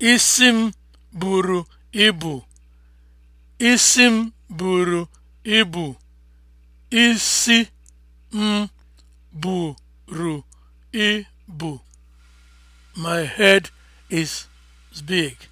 Isi m buru ibu. Isi m buru ibu. Isi ibu. My head is big.